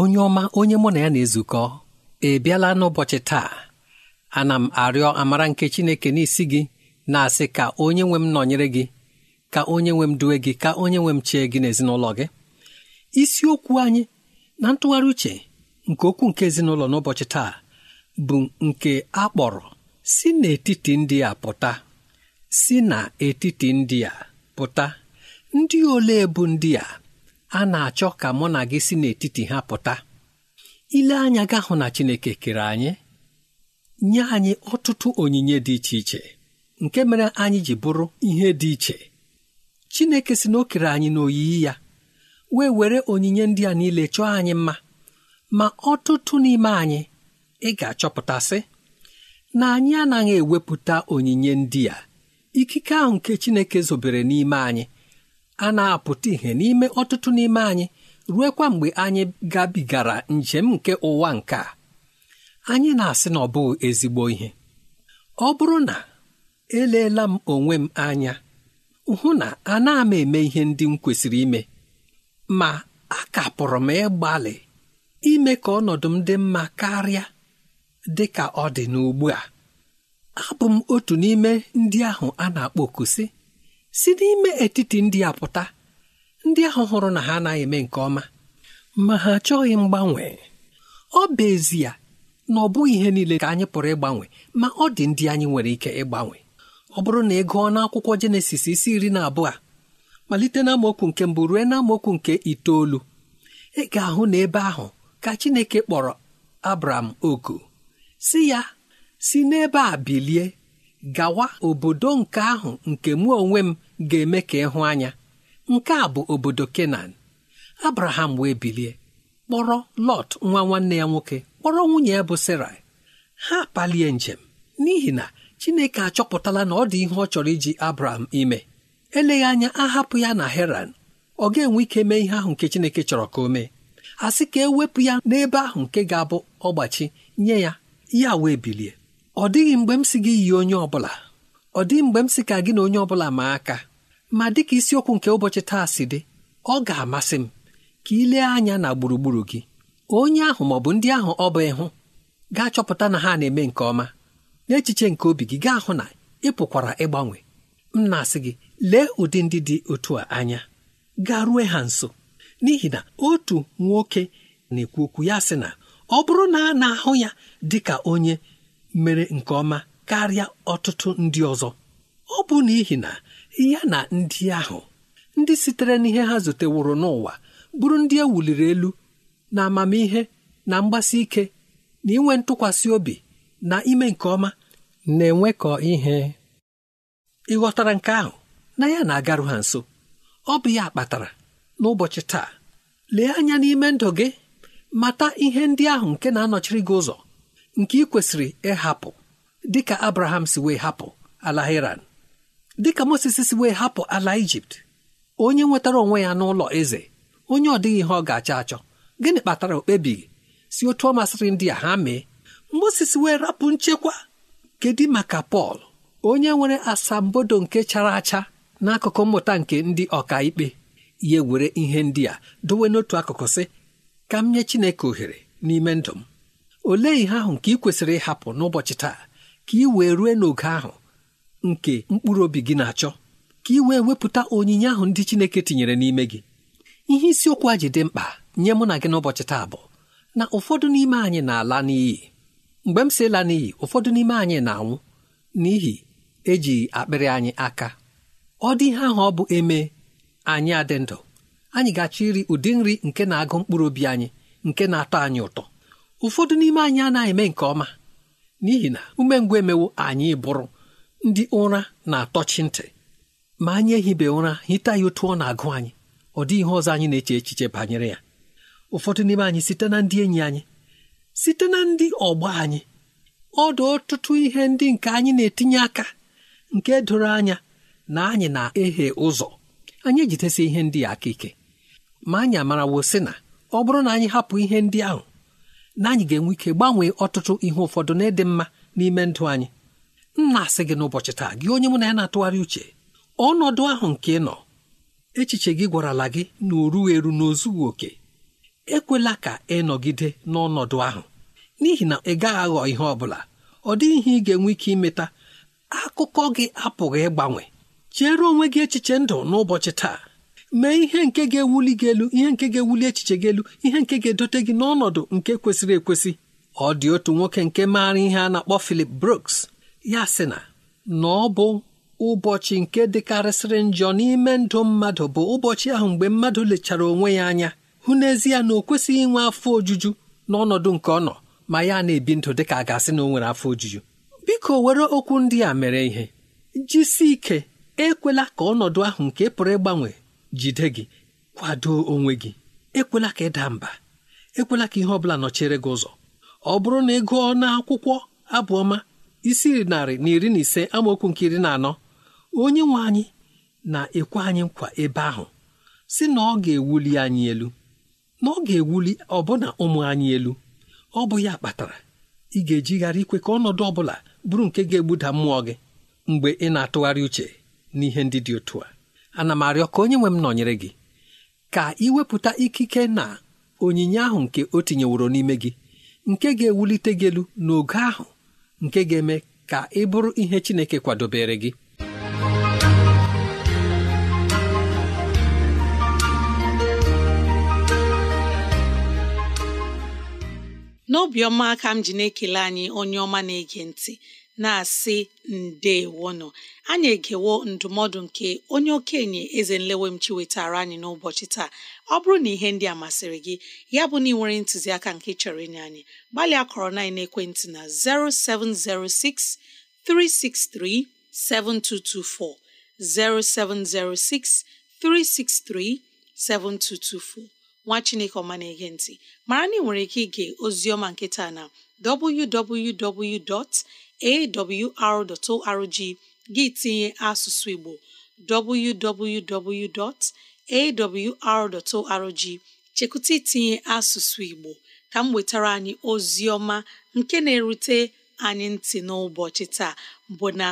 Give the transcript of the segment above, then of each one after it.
onye ọma onye mụ na ya na-ezukọ ị bịala n'ụbọchị taa ana m arịọ amara nke Chineke n'isi gị na-asị ka onye nwe m nọnyere gị ka onye nwe m duwe gị ka onye nwe m chee gị n'ezinụlọ gị isiokwu anyị na ntụgharị uche nke okwu nke ezinụlọ n'ụbọchị taa bụ nke a kpọrọ si n'etiti ndị a pụta si n'etiti ndị a pụta ndị ole bụ ndị a a na-achọ ka mụ na gị si n'etiti ha pụta ile anya ga hụ na Chineke kere anyị nye anyị ọtụtụ onyinye dị iche iche nke mere anyị ji bụrụ ihe dị iche Chineke si na o kere anyị n'oyiyi ya wee were onyinye ndị a niile chọọ anyị mma ma ọtụtụ n'ime anyị ị ga-achọpụtasị na anyị anaghị ewepụta onyinye ndị a ikike ahụ nke Chineke zobere n'ime anyị a na-apụta ihè n'ime ọtụtụ n'ime anyị ruekwa mgbe anyị gabigara njem nke ụwa nke a anyị na-asị na ọ bụghị ezigbo ihe ọ bụrụ na eleela m onwe m anya hụ na ana m eme ihe ndị m kwesịrị ime ma a kapụrụ m ịgbalị ime ka ọnọdụ m dị mma karịa dị ka ọ dị n'ugbu a abụ m otu n'ime ndị ahụ a na-akpọ oku si n'ime etiti ndị a pụta ndị ahụ hụrụ na ha anaghị eme nke ọma ma ha achọghị mgbanwe ọ bụ ezie na ọ bụghị ihe niile ka anyị pụrụ ịgbanwe ma ọ dị ndị anyị nwere ike ịgbanwe ọ bụrụ na ị gụọ n'akwụkwọ jenesis isi iri na abụọ malite n'amaokwu nke mbụ ruo n'amaokwu nke itoolu ị ga-ahụ n'ebe ahụ ka chineke kpọrọ abram oku si ya si n'ebe a bilie gawa obodo nke ahụ nke mụ onwe m ga-eme ka ịhụ anya nke a bụ obodo Kenan Abraham wee bilie kpọrọ Lọt nwa nwanne ya nwoke kpọrọ nwunye ya bụ Sarai ha palie njem n'ihi na Chineke achọpụtala na ọ dị ihe ọ chọrọ iji Abraham ime eleghị anya ahapụ ya na Heran ọ ga-enwe ike mee ihe ahụ nke Chineke chọrọ ka o mee a sị ka ewepụ ya n'ebe ahụ nke ga-abụ ọgbachi nye ya ya wee bilie ọ dịghị mgbe m si gị yi onye ọ bụla ọ dị mgbe m sị ka gị na onye ọ bụla maa aka ma dịka isiokwu nke ụbọchị taa si dị ọ ga-amasị m ka ị lee anya na gburugburu gị onye ahụ ma ọ bụ ndị ahụ ọ bụ ịhụ ga-achọpụta na ha na-eme nke ọma n'echiche nke obi gị gaa hụ na ị pụkwara ịgbanwe m na-asị gị lee ụdị ndị dị otu a anya gaa rue ha nso n'ihi na otu nwoke na-ekwu okwu ya sị na ọ bụrụ na a na-ahụ ya dị ka onye mere nke ọma karịa ọtụtụ ndị ọzọ ọ bụ n'ihi na ya na ndị ahụ ndị sitere n'ihe ha zuteworo n'ụwa bụrụ ndị ewuliri elu na amamihe na mgbasi ike na inwe ntụkwasị obi na ime nke ọma na-enwekọ ihe ịghọtara nke ahụ na ya na-agarụ ha nso ọ bụ ya kpatara n'ụbọchị taa lee anya n'ime ndụ gị mata ihe ndị ahụ nke na-anọchiri gị ụzọ nke ị kwesịrị ịhapụ dịka abraham si wee hapụ ala iran dịka moses si wee hapụ ala ijipt onye nwetara onwe ya n'ụlọ eze onye ọ dịghị ihe ọ ga-achọ achọ gịnị kpatara okpebighị si otu ọ masịrị ndị a ha mee moses wee rapụ nchekwa kedu maka pọl onye nwere asambodo nke chara acha n'akụkụ mmụta nke ndị ọkaikpe ya were ihe ndị a dowe n'otu akụkụ sị ka m nye chineke ohere n'ime ndụ m olee ihe ahụ nke ị kwesịrị ịhapụ n'ụbọchị taa ka ị wee rue n'oge ahụ nke mkpụrụ obi gị na-achọ ka ị wee wepụta onyinye ahụ ndị Chineke tinyere n'ime gị ihe isiokwu a ji dị mkpa nye mụ na gị n'ụbọchị taa bụ na ụfọdụ n'ime anyị na-ala n'iyi mgbe m si ịla n'iyi ụfọdụ n'ime anyị na-anwụ n'ihi eji akpịrị anyị aka ọ dị ihe ahụ ọ bụ eme anyị adị ndụ anyị ga-achọ iri ụdị nri nke na-agụ mkpụrụ obi anyị nke na-atọ anyị ụtọ ụfọdụ n'ime anyị anaghị eme nke ọma n'ihi na umengwụ emewo anyị bụrụ ndị ụra na-atọchi ntị ma anyị ehibe ụra hita ya otu ọ na-agụ anyị ọ dịghị ihe ọzọ anyị na-eche echiche banyere ya ụfọdụ n'ime anyị site na ndị enyi anyị site na ndị ọgbọ anyị ọ dị ọtụtụ ihe ndị nke anyị na-etinye aka nke doro anya na anyị na-ehe ụzọ anyị ejidesi ihe ndị a aka ike ma anyị amarawo si na ọ bụrụ na anyị hapụ ihe ndị ahụ na anyị ga-enwe ike gbanwee ọtụtụ ihe ụfọdụ na ịdị mma n'ime ndụ anyị nna asị gị n'ụbọchị taa gị onye mụ na ya na-atụgharị uche ọnọdụ ahụ nke ị nọ echiche gị gwarala gị na orughị eru n'ozughị oke ekwela ka ị nọgide n'ọnọdụ ahụ n'ihi na ị gaghị aghọ ihe ọ bụla ọ dịghị ihe ị ga-enwe ike imeta akụkọ gị apụghị ịgbanwe chere onwe gị echiche ndụ n'ụbọchị taa mee ihe nke ga-ewuli gị elu ihe nke ga-ewuli echiche gị elu ihe nke ga-edote gị n'ọnọdụ nke kwesịrị ekwesị ọ dị otu nwoke nke maara ihe a na-akpọ Philip Brooks ya sị na na ọ bụ ụbọchị nke dịkarịsịrị njọ n'ime ndụ mmadụ bụ ụbọchị ahụ mgbe mmadụ lechara onwe ya anya hụ n'ezie na o kwesịghị inwe afọ ojuju n'ọnọdụ nke ọ nọ ma ya na-ebi ndụ ka a ga-asị na o nwere afọ ojuju biko were okwu ndị a mere ihe jisi ike ekwela ka ọnọdụ ahụ nke pụrụ ịgbanwe jide gị kwado onwe gị ekwela ka ịda mba ekwela ka ihe ọ bụla nọchere gị ụzọ ọ bụrụ na ị gụọ n'akwụkwọ abụọma isi narị na iri na ise amaokwu nke iri na anọ onye nwe anyị na-ekwe anyị nkwa ebe ahụ si na ọ ga-ewuli anyị elu na ọ ga-ewuli ọbụna ụmụ anyị elu ọ bụ ya kpatara ị ga-ejigharị ikwe ka ọnọdụ ọ bụla bụrụ nke ga-egbuda mmụọ gị mgbe ị na-atụgharị uche n'ihe ndị dị otu a ana m arịọ ka onye nwe m nọnyere gị ka iwepụta ikike na onyinye ahụ nke o tinyeworo n'ime gị nke ga-ewulite gị elu n'oge ahụ nke ga-eme ka ị bụrụ ihe Chineke kwadobere gị n'obiọma ka m ji na-ekele anyị onye ọma na-ege ntị na-asị ndewonụ anyị egewo ndụmọdụ nke onye okenye eze nlewemchi wetara anyị n'ụbọchị taa ọ bụrụ na ihe ndị a masịrị gị ya bụ na ị nwere ntụziaka nke chọrọ ịnye anyị gbalịa kọrọ na ekwentị na 0706 363 0706 363 7224 nwa chineke ọma na-ege ntị mara na ị nwere ike ige ozioma nketa na www. awr.org gị tinye asụsụ Igbo www.awr.org chekụta itinye asụsụ Igbo ka m wetara anyị ozi ọma nke na-erute anyị ntị n'ụbọchị taa bụ na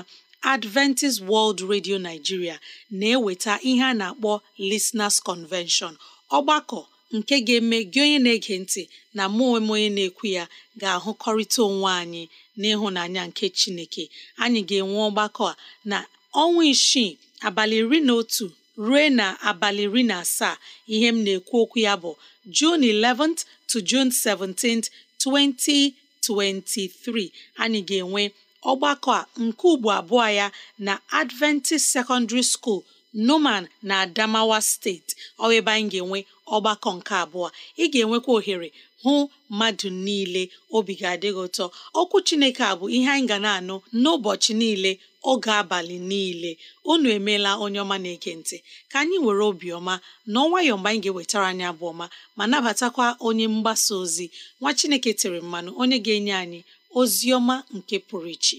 Adventist World Radio Nigeria na-eweta ihe a na-akpọ Listeners Convention ọgbakọ nke ga-eme gị onye na-ege ntị na mụ onwe onye na-ekwu ya ga-ahụkọrịta onwe anyị n'ịhụnanya nke chineke anyị ga-enwe ọgbakọ a na ọnwa isii abalị iri na otu ruo na abalị iri na asaa ihe m na-ekwu okwu ya bụ June 11th to June 17th 2023 anyị ga-enwe ọgbakọ a nke ugbo abụọ ya na Adventist Secondary School numan na adamawa steeti ọ ebe anyị ga-enwe ọgbakọ nke abụọ ị ga-enwekwa ohere hụ mmadụ niile obi ga adịghị ụtọ okwu chineke a bụ ihe anyị ga na-anụ n'ụbọchị niile oge abalị niile unu emeela onye ọma na ekentị ntị ka anyị were obiọma na ọnwayọọ mgbe anyị ga-ewetara anyị abụ ọma ma nabatakwa onye mgbasa ozi nwa chineke tere mmanụ onye ga-enye anyị ozi ọma nke pụrụ iche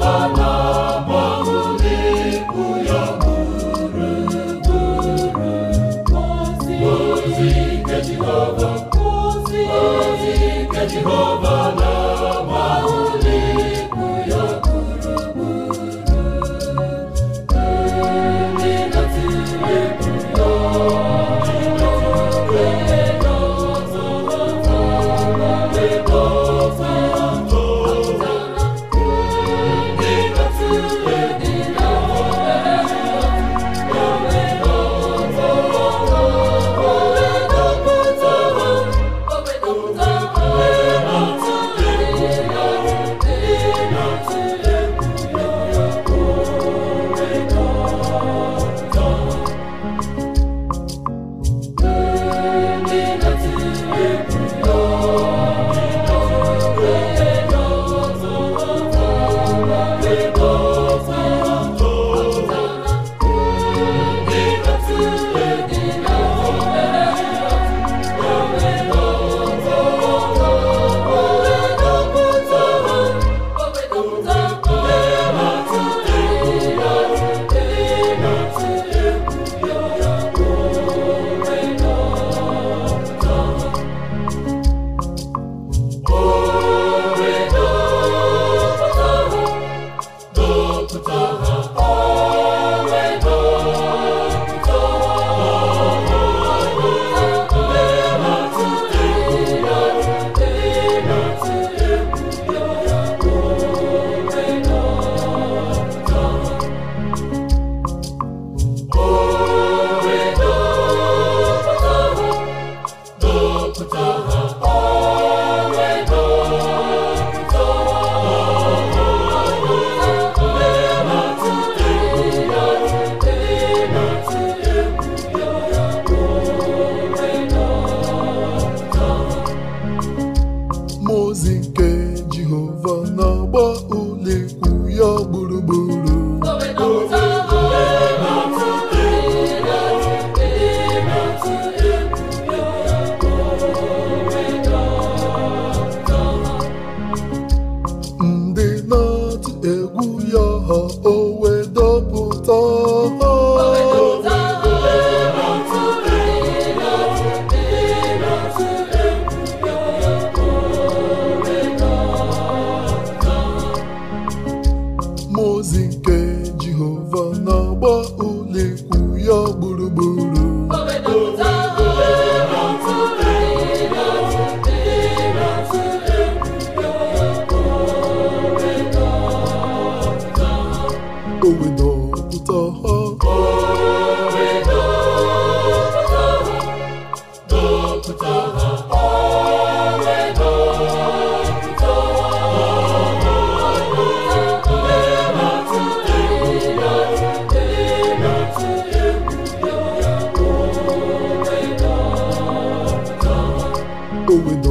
go with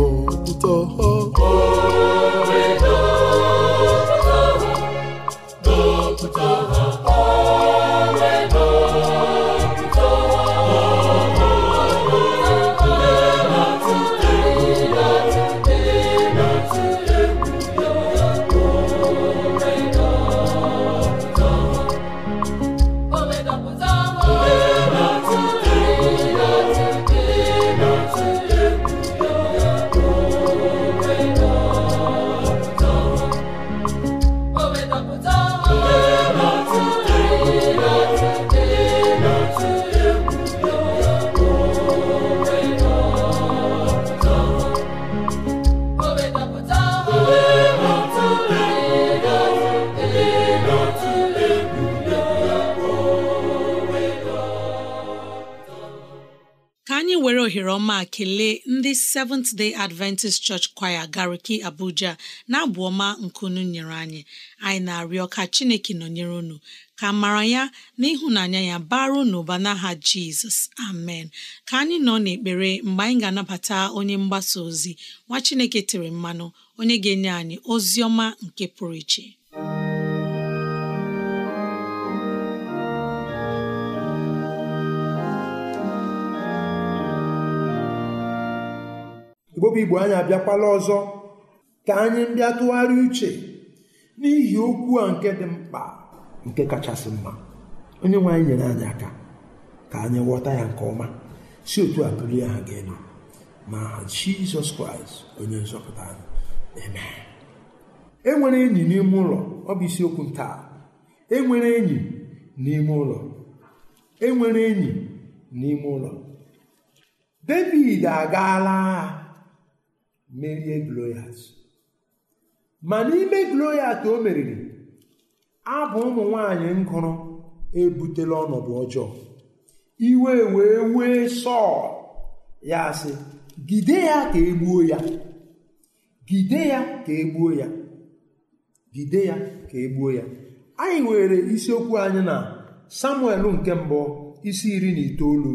all. anyị were ohere ọma kelee ndị Seventh Day Adventist Church Choir Gariki Abuja na-abụ ọma nkunu nyere anyị anyị na-arịọ ka Chineke nọnyere unu ka mara ya na ịhụnanya ya baru n'ụba n'aha Jizọs amen ka anyị nọ n'ekpere mgbe anyị ga-anabata onye mgbasa ozi nwa Chineke tere mmanụ onye ga-enye anyị ozi ọma nke pụrụ iche mgbobụ igbo anyị abịakwala ọzọ ka anyị ndị atụgharị uche n'ihi okwu a nke dị mkpa nke kachasị mma onye nwe anyị nyere anyị aka ka anyị ghọta ya nke ọma si otu a bulie ha ga elu na aha jizọs kraịst onye nzọpụta anyị amen e enyi n'ime ụlọ ọ bụ isiokwu taa enwere enyi n'ime ụlọ enwere enyi n'ime ụlọ david agaala agha merie Goliat ma n'ime Goliat o meriri abụ ụmụ nwanyị ngụrụ ebutela ọnọdụ ọjọọ iwe wee wee sọọ ya sị gide ya ka egbuo ya gide ya ka egbuo ya gide ya ka egbuo ya anyị were isiokwu anyị na Samuel nke mbụ isi iri na itoolu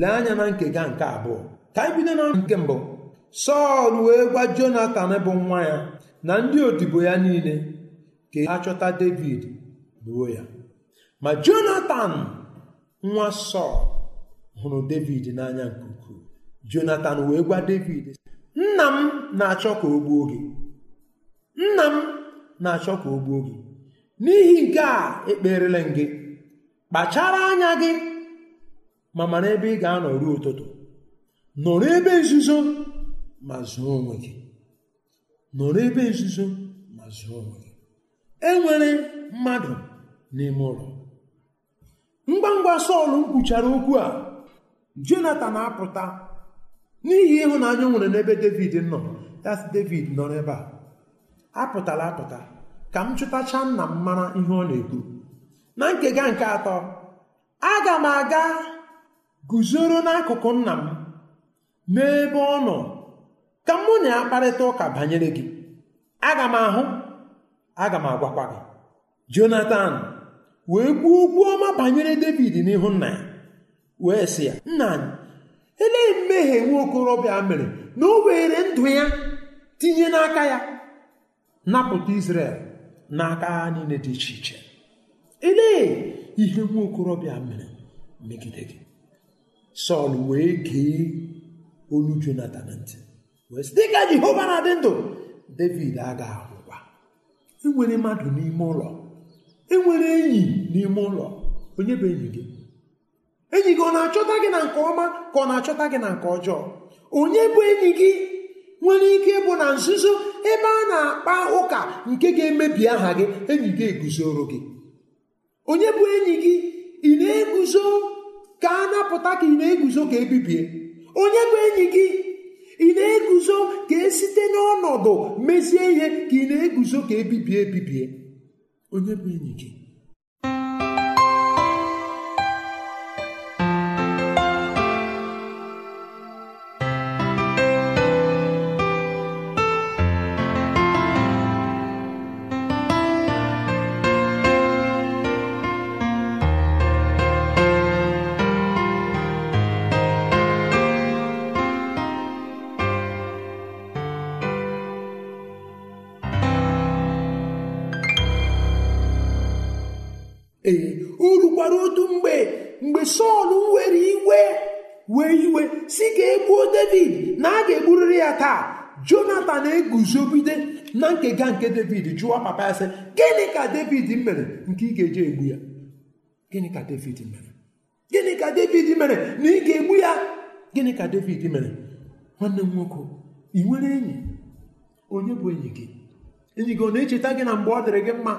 lee anya na nkega nke abụọ ka anyị bido na nke mbụ sọl wee gwa jonatan bụ nwa ya na ndị odibo ya niile ka ha chọta david gbuo ya ma jonatan nwa sọl hụrụ david n'anya nke ukwuu jonatan wee gwa david nna m na-achọ ka o gbuo gị nna m na-achọ ka o gbuo gị n'ihi nke a ekperela m gị kpachara anya gị ma mara ebe ị ga-anọ ụtụtụ nọrọ ebe nzuzo ma zụọ onwe gị nọrọ ebe nzuzo ma zụọ onwe gị e nwere mmadụ n'ime ụlọ ngwa ngwa Sọl kwuchara okwu a Jonatan apụta n'ihi ịhụnanya nwere n'ebe David nọ das David nọrọ n'ebe a apụtala apụta ka m chụtacha nna m mara ihe ọ na egbu na nkega nke atọ aga m aga guzoro n'akụkụ nna m n'ebe ọ nọ ka mụ na ya kparịta ụka banyere gị aga m ahụ aga m agwakwa gị jonathan wee kwuo okwu ọma banyere david n'ihu nna ya wee sị ya nna anyị elee mmehie nwa okorobịa mere na o were ndụ ya tinye n'aka ya napụta israel n'aka agha niile dị iche iche elee ihe nwa okorobịa mere megide gị sọl wee gee olu jonathan ntị wee sị dịka jehova na-adị ndụ david aga agwụkwa enwere mmadụ n'ime ụlọ enwere enyi n'ime ụlọ onye bụ enyi gị enyi gị ọ na-achọta gị na nke ọma ka ọ na-achọta gị na nke ọjọọ onye bụ enyi gị nwere ike bụ na nzuzo ebe a na-akpa ụka nke ga-emebi aha gị enyi gị eguzoro gị onye bụ enyi gị ị na-eguzo ka a napụta ka ị na-eguzo ka ebibie onye bụ enyi gị ị na-eguzo ka e site n'ọnọdụ mezie ihe ka ị na-eguzo ka ebibie ebibie onye bụ enyi gị guzogide na nkega nke david jụọ papa ya sị gịnị ka david mere nke ị ga-eji egbu ya gịnị ka david mere gịnị ka david mere na ị ga-egbu ya gịnị ka david mere nwanne m nwoke ị nwere enyi onye bụ enyi gị enyi gị ọ na-echeta gị na mgbe ọ dịrị gị mma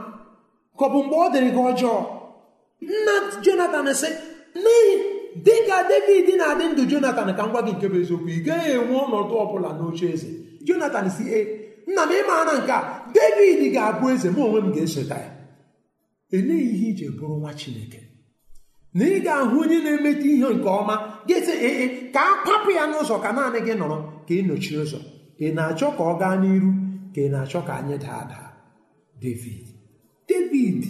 ka ọ bụ mgbe ọ dịrị gị ọjọọ nna jonathan sị n'ihi dị ka david na-adị ndụ jonathan ka m gwa gị nke bụ eziokwu ị gaghị enwe ọnọdụ ọbụla bụla n'oche eze jonatan si e nna m ịma na nke a david ga-abụ eze mụ onwe m ga-esota ya eleghị ihe ije bụrụ nwa chineke na ị ga-ahụ onye na-emeta ihe nke ọma ga-ese ee eh, eh, ka a kwapụ ya n'ụzọ ka naanị gị nọrọ ka ị nọchie ụzọ ị na-achọ ka ọ gaa n'iru ka ị na-achọ ka anyị daa daa david david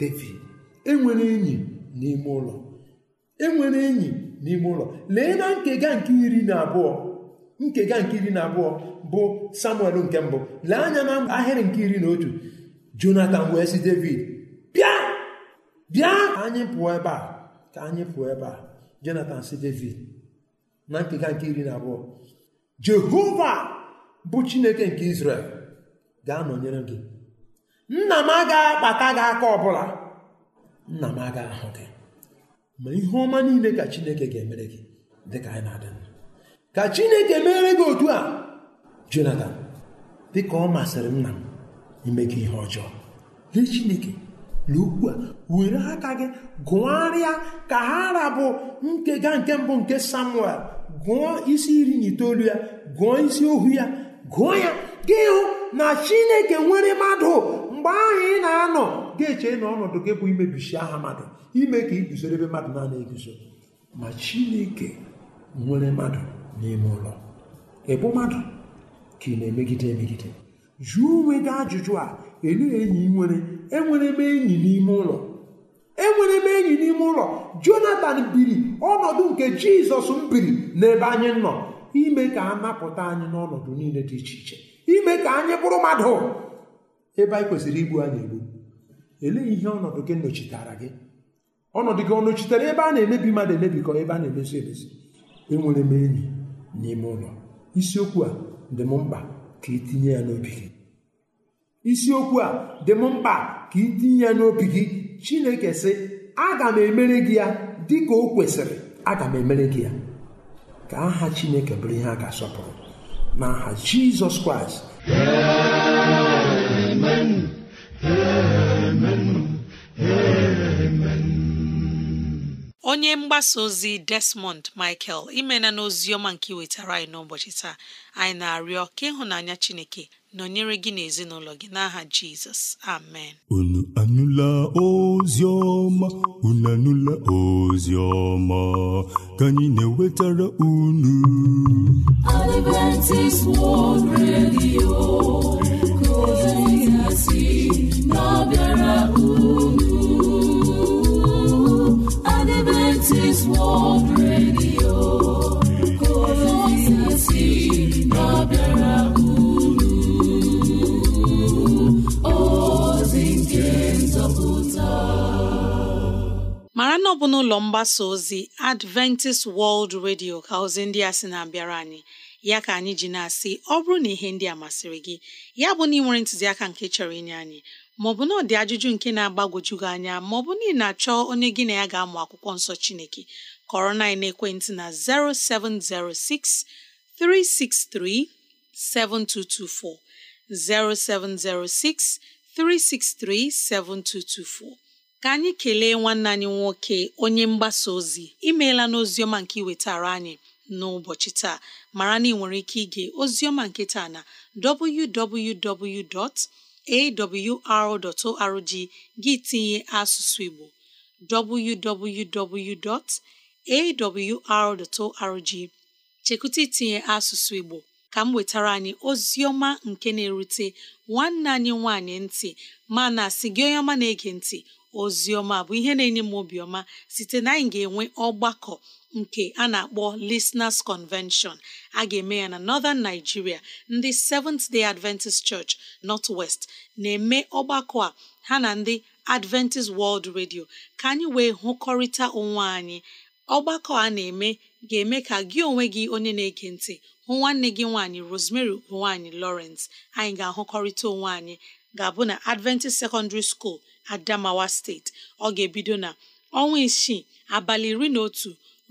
david enwere enyi n'ime ụlọ enwere enyi n'ime ụlọ lee na nkega nke iri na abụọ nkega nke iri na abụọ bụ samuel nke mbụ lee anya na ahịrị nke iri na otu jonathan wee si david bịa bịa anyị pụọ ebe a ka anyị pụọ ebe a jonathan si david na nkega nke iri na abụọ jehova bụ chineke nke israel ga-anọnyere gị nna m agaghị akpata gị aka ọbụla nna m agaghị ahụ gị ma ihe ọma niile ka chineke ga-emere gị dịka anyị na-adị ka chineke mere gị otu a jonatan dịka ọ masịrị nna m ime gị ihe ọjọọ lee chineke na a were aka gị gụgharịa ka ha rabụ nkega nke mbụ nke samuel gụọ isi iri na itoolu ya gụọ isi ohu ya gụọ ya gị hụ na chineke nwere mmadụ mgbe ahụ ị na-anọ ga-eche na ọnọdụ gị bụ imebisi aha mmadụ ime ka iguzoro ebe mmadụ na-ana eguzo ma chineke nwere mmadụ n'ime ụlọ ị mmadụ ka ị na-emegide emegide jụọ onwe gị ajụjụ a elee enyi nwere enwere m enyi n'ime ụlọ enwere m enyi n'ime ụlọ jonatan biri ọnọdụ nke jizọs m biri n'ebe anyị nọ ime ka a napụta anyị n'ọnọdụ niile dị iche iche ime ka anyị bụrụ mmadụ ebe anyị kwesịrị igbu anyị egbu elee ihe ọnọdụ gị nọchitara gị ọnọdụ gị ọ nọchitere ebe a na-emebi mmadụ emebikọ ebe a na-emezu emezi enwere m enyi n'ime ụlọ isiokwu a dị m mkpa ka itinye ya n'obi gị ya n'obi gị chineke sị aga m emere gị ya dị ka o kwesịrị aga m emere gị ya ka aha chineke bụrụ ihe a ga-asọpụrụ n'aha jizọs kraịst onye mgbasa ozi Desmond Michael imena na ọma nke wetara anyị n'ụbọchị taa anyị na-arịọ ka ịhụnanya Chineke nọnyere gị n'ezinụlọ gị n'aha Jizọs amen unu anụla ozi ọma unu anụla ozi ọma ka anyị na-ewetara unu Adventist World Radio ọ bụ n'ụlọ mgbasa ozi Adventist World Radio ka ozi ndị a sị na-abịara anyị ya ka anyị ji na-asị ọ bụrụ na ihe ndị a masịrị gị ya bụ na ị nwere ntụziaka nke chọrọ inye anyị maọbụ na ọ dị ajụjụ nke na-agbagwoju gị anya maọbụ na ị na-achọ onye gị na ya ga-amụ akwụkwọ nsọ Chineke kọrọ na ekwentị na 0706 363 0706 363 7224 ka anyị kelee nwanne anyị nwoke onye mgbasa ozi imeela n'oziọma nke iwetara anyị n'ụbọchị taa mara na ị nwere ike ige ozioma nketa na www.awr.org gị tinye asụsụ Igbo www.awr.org chekụta itinye asụsụ Igbo ka m wetara anyị ozioma nke na-erute nwanne anyị nwanyị ntị mana asị gị onye ọma na-ege ntị ozioma bụ ihe na-enye m obiọma site na anyị ga-enwe ọgbakọ nke a na-akpọ Listeners Convention a ga-eme ya na Northern Nigeria ndị Seventh Day Adventist Church North West na-eme ọgbakọ a ha na ndị Adventist World Radio ka anyị wee hụkọrịta onwe anyị ọgbakọ a na-eme ga-eme ka gị onwe gị onye na-ege ntị hụ nwanne gị nwaanyị Rosemary nwaanyị Lawrence anyị ga-ahụkọrịta onwe anyị ga-abụ na Adventist Secondary School Adamawa Steeti ọ ga-ebido na ọnwa isii abalị iri na otu